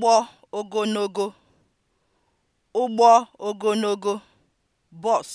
ụgbọ ogologo (ụgbọ ogologo) bus